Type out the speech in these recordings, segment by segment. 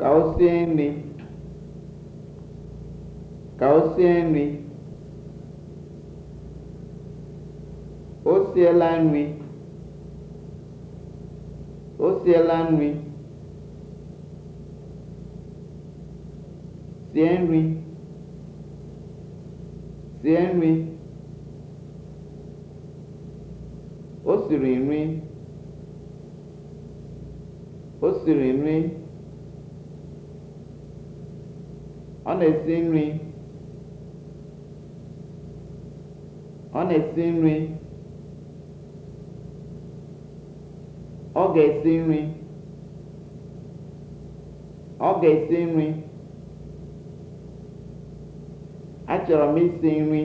ka o ka o sie nri o siela nri o nri sie nri sie nri o siri nri o siri nri Ọ na-esi nri. Ọ na-esi nri. Ọ ga-esi nri. Ọ ga-esi nri. Achọrọ m isi nri.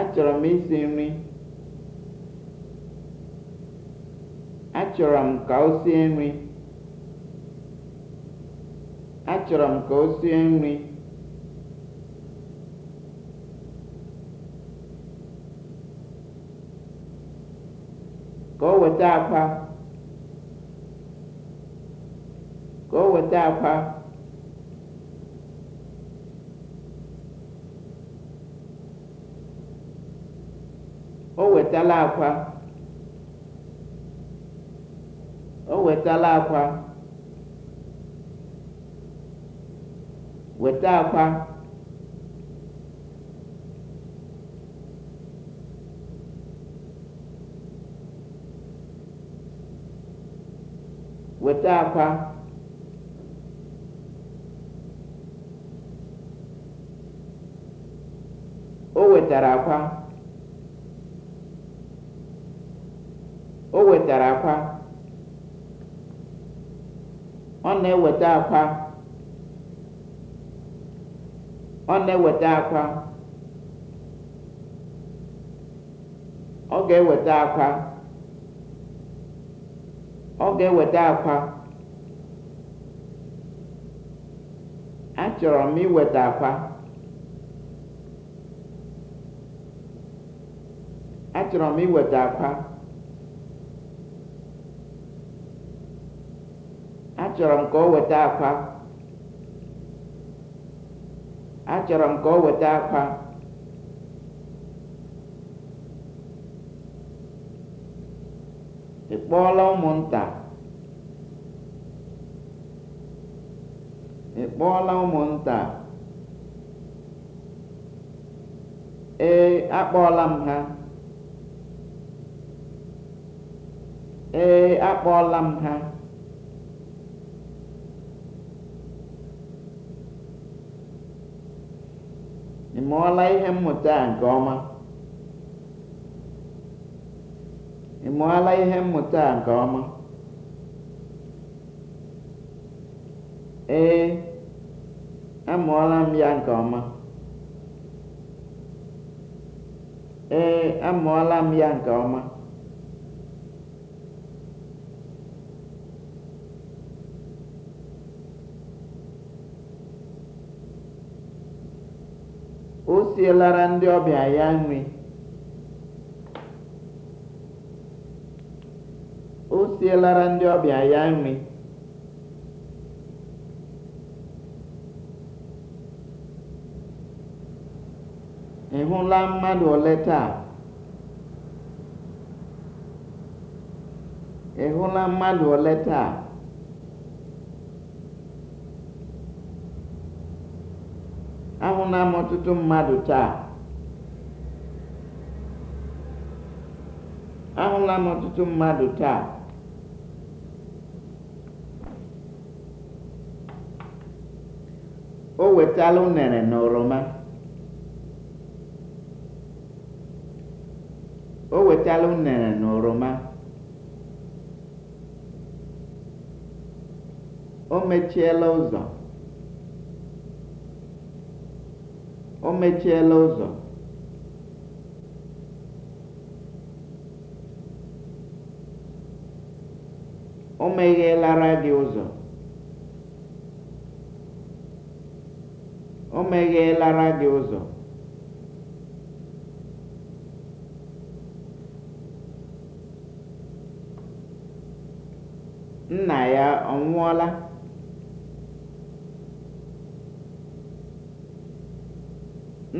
Achọrọ m isi nri. Achọrọ m ka o sie nri. Achọrọ m ka o sie nri. Ka o weta akpa. Ka o weta akpa. O wetala akwa. O wetala akwa. weta akwa weta akwa o wetara akwa o wetara akwa ọ na-eweta akwa ọ na-eweta akwa ọ ga-eweta akwa ọ ga-eweta akwa achọrọ m iweta akwa achọrọ m iweta akwa achọrọ m ka ọ weta akwa achọrọ m ka ọ weta akpa ị kpọọla ụmụnta ị kpọọla ụmụnta ee akpọọla m ha ee akpọọla m ha ị mụọla ihe mmụta a ee nke ọma ee amụọla m ya nke ọma esielera ndị ọbịa ya nri o sielara ndị ọbịa ya nri ị hụla mmadụ ole taa ị hụla mmadụ ole taa Amụla m ọtụtụ mmadụ taa ahụla m ọtụtụ mmadụ taa o wetala unere na o wetala unere na oroma o mechiela ụzọ Omechiela mechiela ụzọ. O meghelara gị ụzọ. gị ụzọ. Nna ya ọ nwụọla?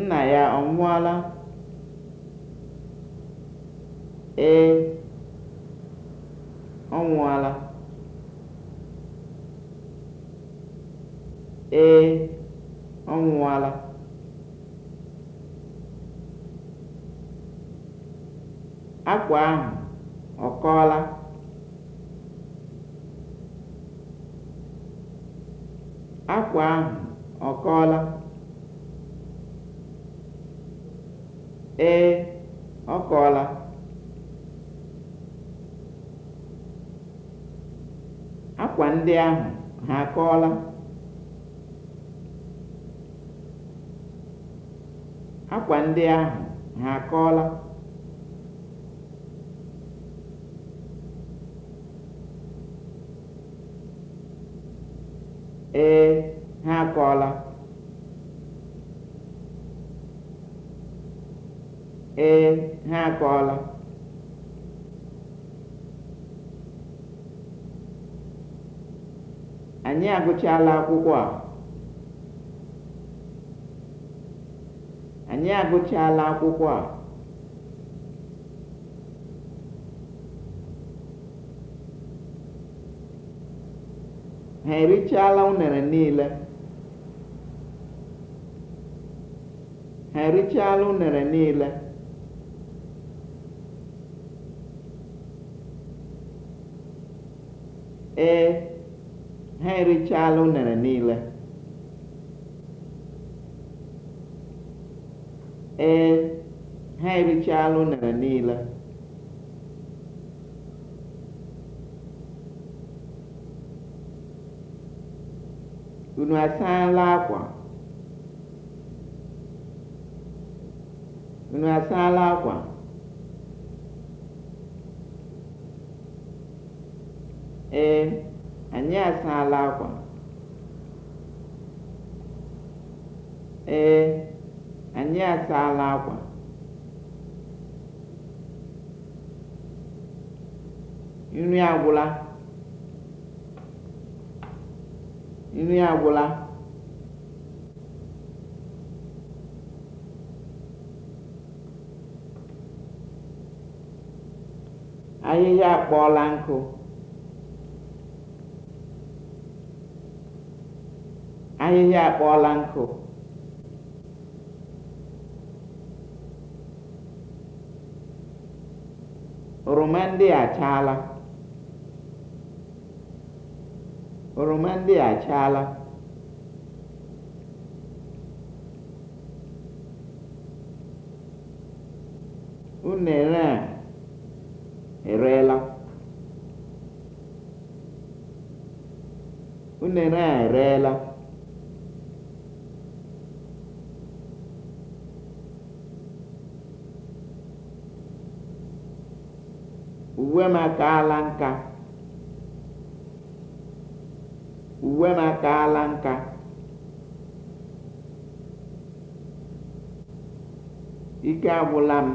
Nna ya ọ nwụọla? Ee, ọ nwụọla. Ee, ọ nwụọla. Akwa ahụ ọ Akwa ahụ ọ kọọla? ee ọ kọọla akwa ndị ahụ ha akọọla akwa ee ha akọọla e, ee ha akọọla anyị agụchala akwụkwọ a anyị agụchala akwụkwọ a ha erichala unere niile ha erichala unere niile ee ha erichaala unere niile ee ha erichaala unere niile unu asaala akwa unu asaala akwa Ee, anyị asaala akwa. Ee, anyị asaala akwa. Nri agwụla. Nri agwụla. Ahịhịa akpọọla nkụ. ahịhịa akpọọla nkụ oroma ndị a achaala oroma ndị a achaala unere a ereela unere a ereela uwe m akaala nka uwe nka ike agwụla m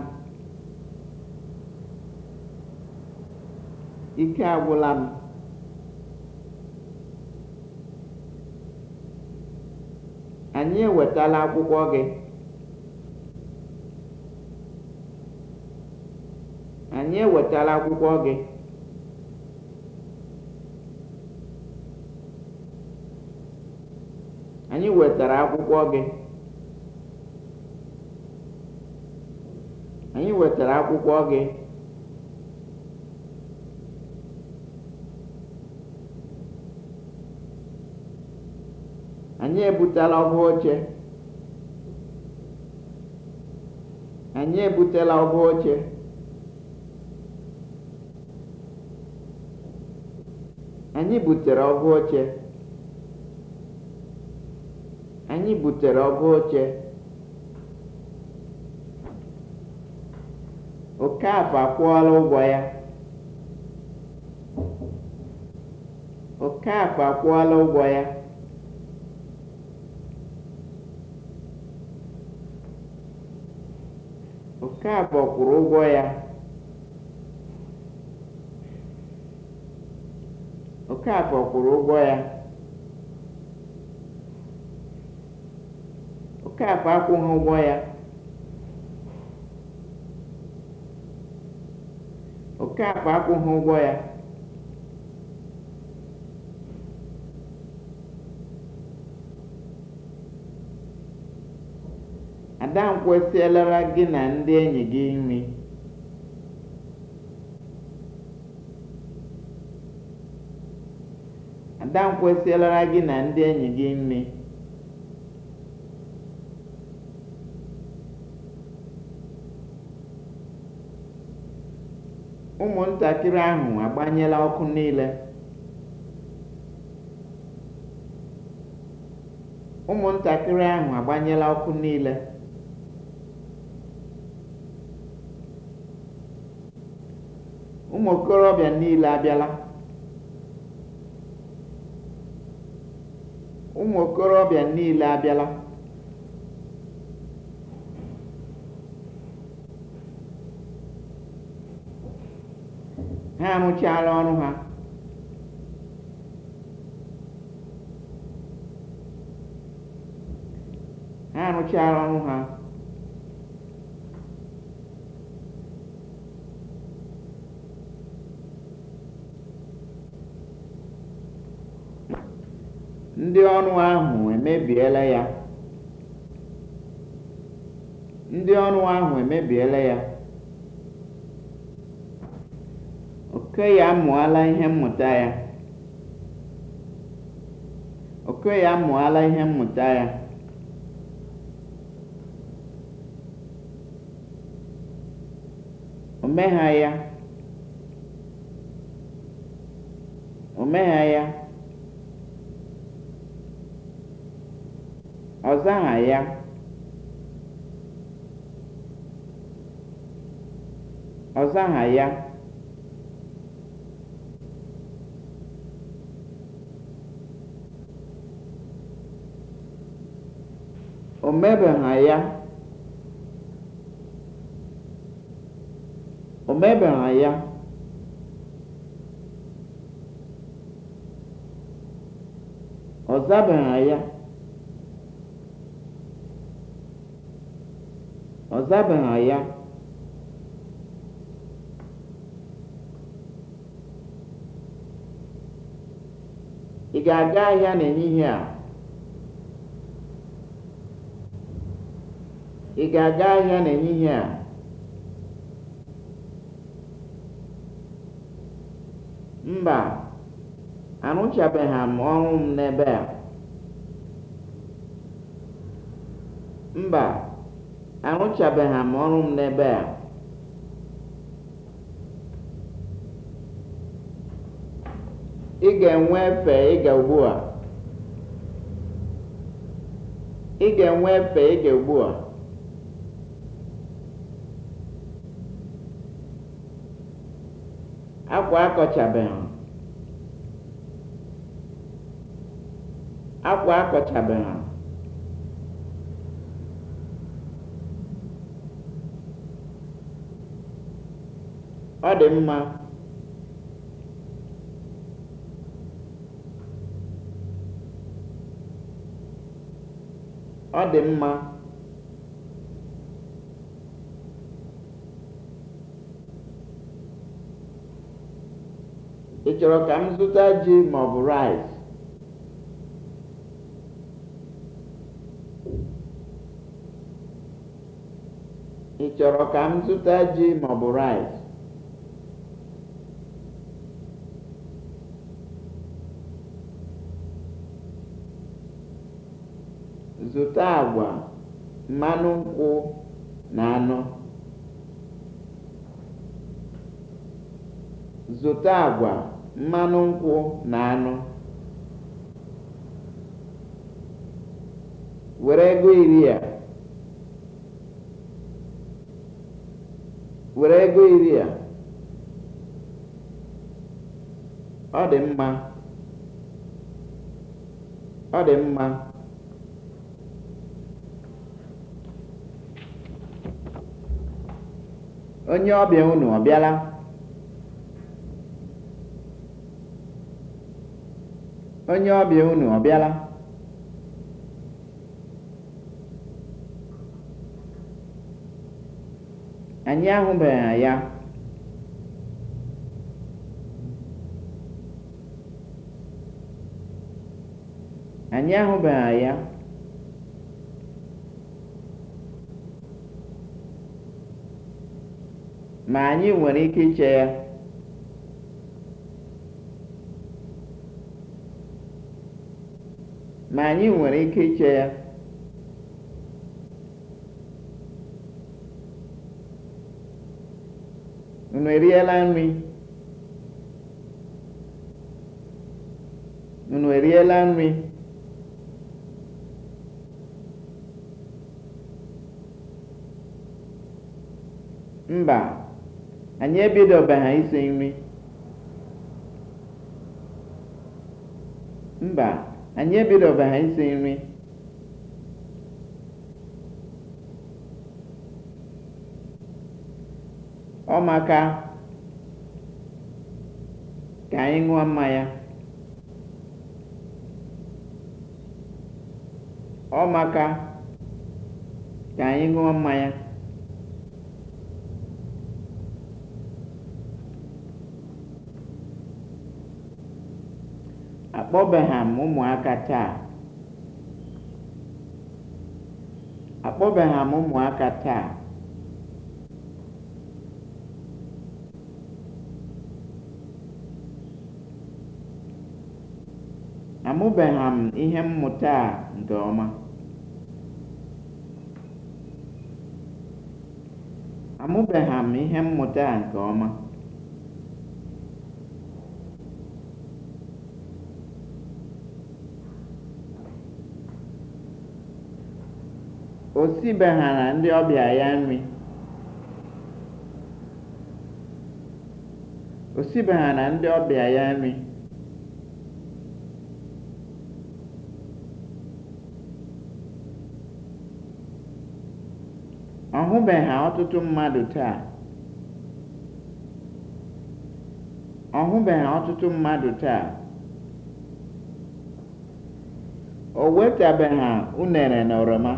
ike agwụla anyị ewetala akwụkwọ gị anyị ewetala akwụkwọ gị anyị wetara akwụkwọ gị anyị wetara akwụkwọ gị anyị ebutela ọba oche anyị ebutela ọba oche Anyị butere ọgwụ oche. Anyị butere ọgwụ oche. Okafor akwụọla ụgwọ ya. Okafor akwụọla ụgwọ ya. Okafor kwụrụ ụgwọ ya. Okafor kwụrụ ụgwọ ya Okafor akwụghị ụgwọ ya Okafor akwụghị ụgwọ ya Ada m kwụsịlara gị na ndị enyi gị nri. nta nkwesịlara gị na ndị enyi gị nri ụmụntakịrị ahụ agbanyela ọkụ niile ụmụntakịrị ahụ agbanyela ọkụ niile ụmụ okorobịa niile abịala ụmụ okorobịa niile abịala ha arụchaala ọrụ ha ha arụchaala ọrụ ha Ndị ọrụ ahụ emebiela ya. Ndị ya. Okoye amụọla ihe mmụta ya. Okoye amụọla ya. ọ zaghị ya ọ zaghị ya o mebeghị ya o mebeghị ya ọ zabeghị ya ọ zabeghị ya ị ga-aga ahịa n'ehihie a ị ga-aga ahịa n'ehihie a mba arụchabeghị m ọrụ m n'ebe a mba arụchabeghị m ọrụ m n'ebe a ị ga-enwe efe ịga ugbu a ị ga-enwe efe ịga ugbu a akwa akọchabeghị akwa akọchabeghị ọ dị mma ọ dị mma ị chọrọ ka m zụta ji ma ọ bụ rice ị chọrọ ka m zụta ji ma ọ bụ rice Zụta agwa, mmanụ nkwụ na anụ. Zụta Were ego iri a. Ọ dị mma. onye ọbịa unu ọbịala, onye ọbịa unu ọbịala, bịala anyị ahụbeghị ya anyị ahụbeghị ya ma anyị nwere ike iche ya ma anyị nwere ike iche ya unu eriela nri unu eriela nri mba anyị ebidobeghị isi nri mba anyị ebidobeghị isi nri ọ ọ maka ka anyị ṅụọ mmanya akpọbeghị ụmụaka taa akpọbeghị ihe mmụta ihe mmụta a nke ọma o ndị ọbịa ya nri o ndị ọbịa ya nri ọ hụbeghị ọtụtụ mmadụ taa ọ hụbeghị ọtụtụ mmadụ taa o wetabeghị unere na oroma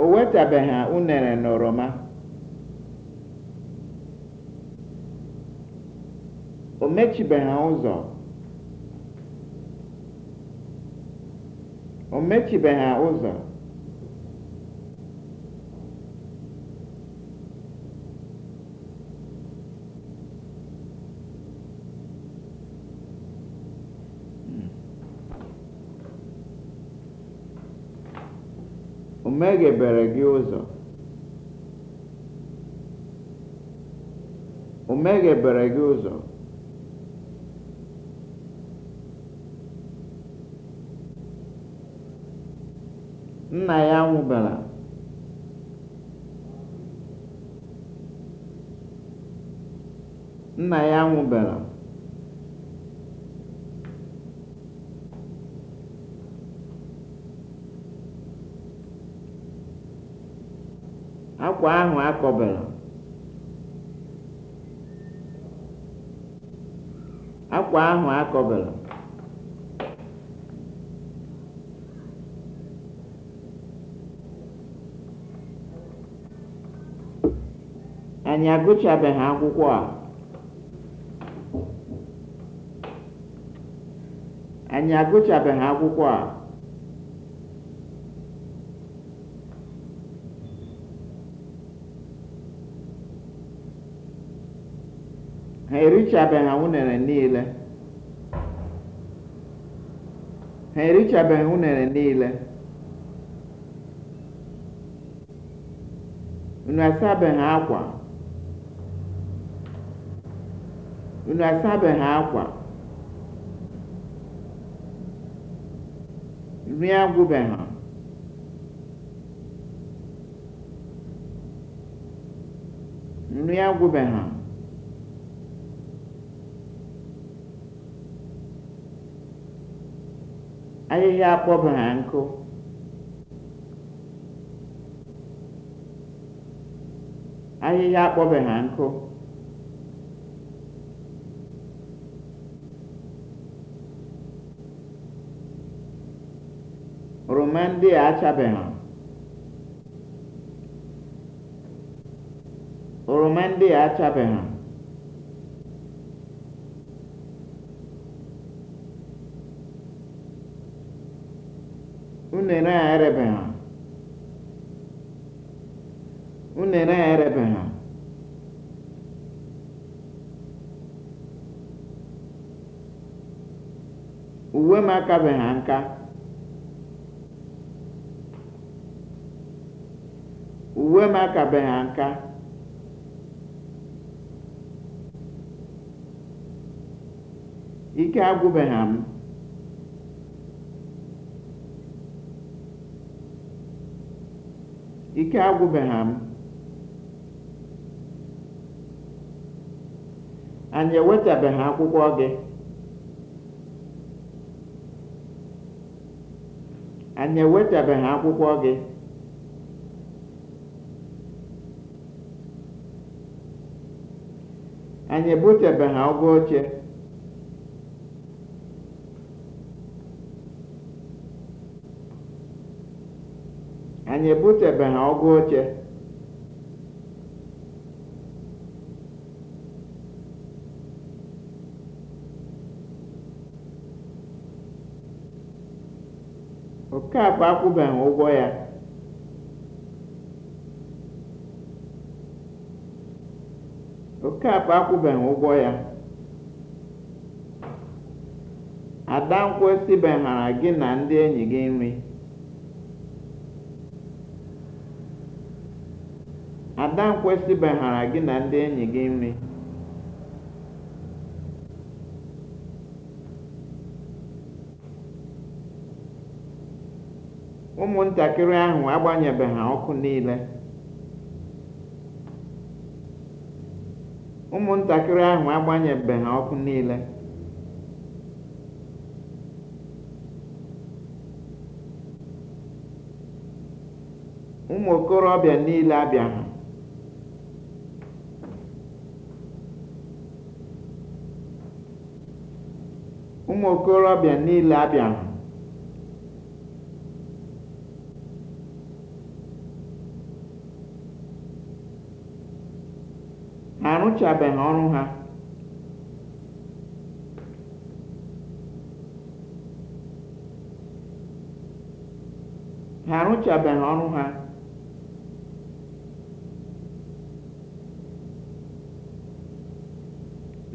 o wetabeghị unere na oroma o mechibeghị ụzọ ụzọ meghebere gị ụzọ gị ụzọ nna ya nwụbara akwa ahụ akọbara akwa ahụ akọbara anyị agụchabeghị akwụkwọ a anyị agụchabeghị akwụkwọ a erichabeghị unere niile ha erichabeghị unere niile unu asabeghị akwa unu asabeghị akwa nri agwụbeghị nri agwụbeghị Ajịjịa akpọbara nkụ. Oroma ndị a achabeghị. Oroma ndị a achabeghị. Unere a erebeghị. Unere a erebeghị. Uwe m akabeghị nka. Uwe m akabeghị nka. Ike agwụbeghị m. ike agwụbeghị m anyị ewetabeghị akwụkwọ gị anyị ewetabeghị akwụkwọ gị anyị ebutebeghị ọgụ oche anyị ebutebeghị ọgụ oche Okafọ akwụbeghị ụgwọ ya Okafọ akwụbeghị ụgwọ ya gị na ndị enyi gị nri ada nkwesịbeghara gị na ndị enyi gị nri ụmụntakịrị ahụ agbanyebeghị ọkụ ahụ agbanyebeghị ọkụ niile ụmụ okorobịa niile abịaghị ụmụ okorobịa niile abịaghị ha arụchabeghị ọrụ ha ha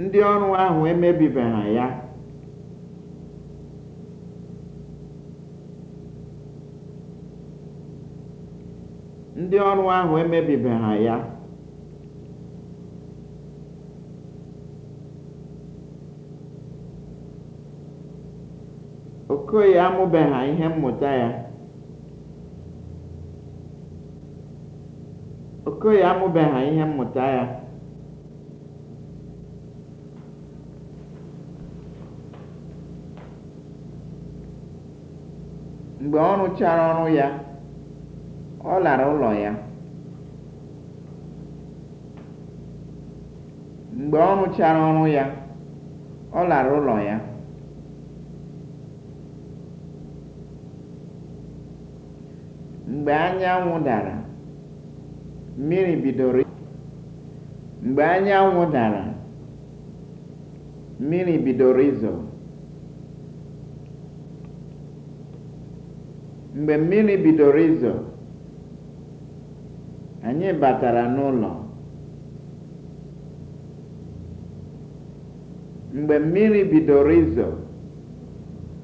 ndị ọrụ ahụ emebibeghị ya ndị ọrụ ahụ emebibeha ya okoye amụbeha ihe mmụta ya okoye amụbeha ihe mmụta ya mgbe ọrụ chara ọrụ ya ọ lara ụlọ ya mgbe ọ rụchara ọrụ ya ọ lara ụlọ ya mgbe anyanwụ dara mmiri bidoro mgbe anyanwụ dara mmiri bidoro izo mgbe mmiri bidoro izo anyị batara n'ụlọ mgbe mmiri bidoro izo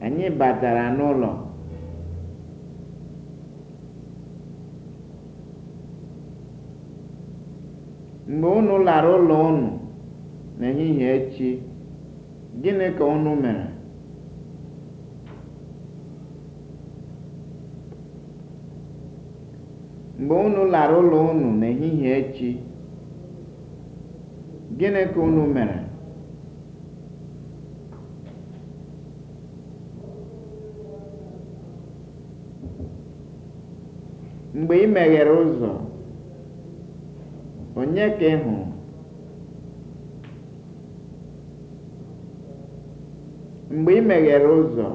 anyị batara n'ụlọ mgbe unu lara ụlọ unu n'ehihie echi gịnị ka unu mere mgbe unu lara ụlọ unu n'ehihie echi gịnị ka unu mere mgbe ị meghere ụzọ onye ka ị mgbe ị meghere ụzọ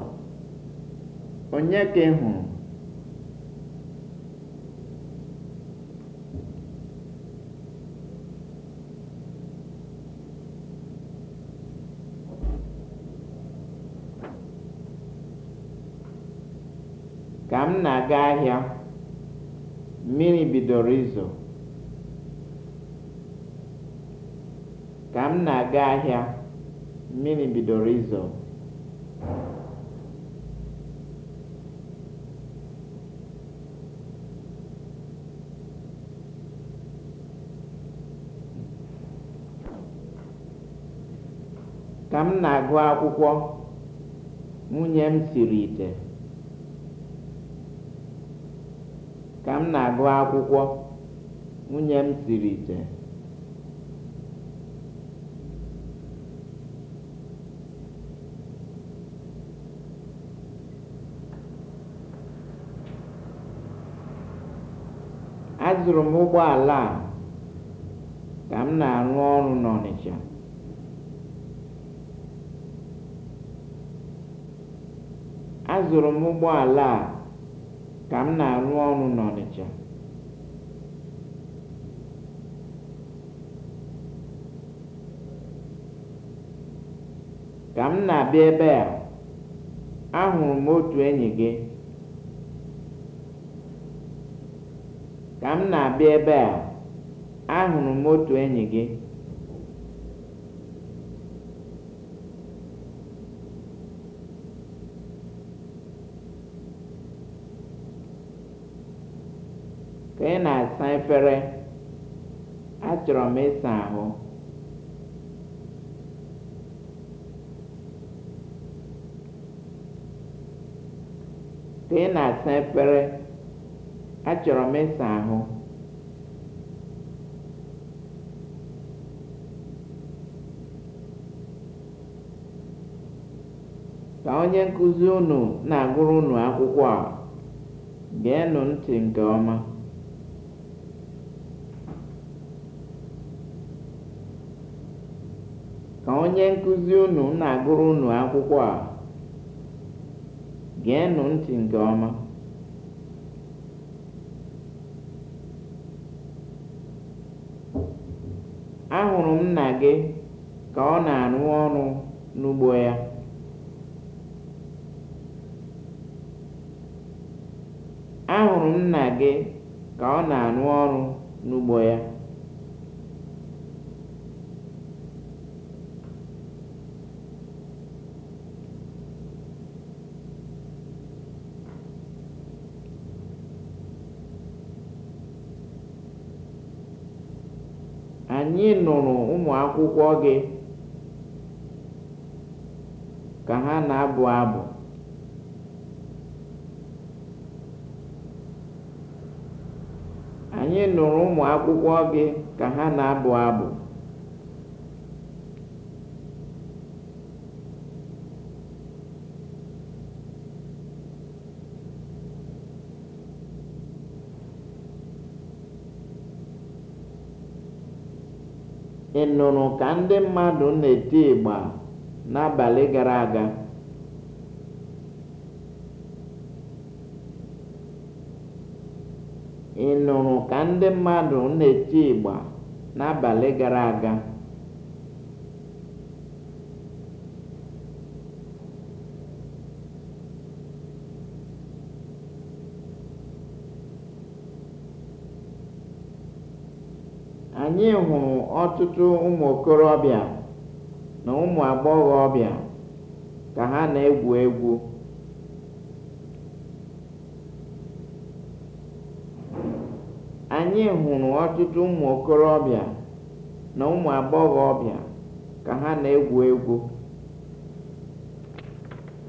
onye ka ị hụrụ ahịa mmiri bidoro izo ka m na-aga ahịa mmiri bidoro izo ka m na-agụ akwụkwọ nwunye m siri ite Ka m na-agụ akwụkwọ, nwunye m siri ite. Azụrụ m ụgbọala a ka m na-arụ ọrụ n'Ọnịsha. Azụrụ m ụgbọala a ka m na-arụ ọrụ n'Ọnịcha ka m na-abịa ebe a ahụrụ m otu enyi gị ka m na-abịa ebe a ahụrụ m otu enyi gị ka ị na-asa efere achọrọ m ịsa ahụ ka ị na-asa onye nkụzi unu na-agụrụ unu akwụkwọ a geenụ ntị nke ọma nkuzi unu na-agụrụ unu akwụkwọ a geenụ ntị nke ọma ahụrụ m nna gị ka ọ na-arụ ọrụ n'ugbo ya ahụrụ m nna gị ka ọ na-arụ ọrụ n'ugbo ya anyị nụrụ ụmụ akwụkwọ gị ka ha na-abụ abụ gị ka ha na-abụ abụ ị nụrụ ka ndị mmadụ na-eti ịgba ịgba n'abalị gara aga anyị hụrụ ọtụtụ ụmụ okorobịa na ụmụ agbọghọbịa ka ha na-egwu egwu ka ha na-egwu egwu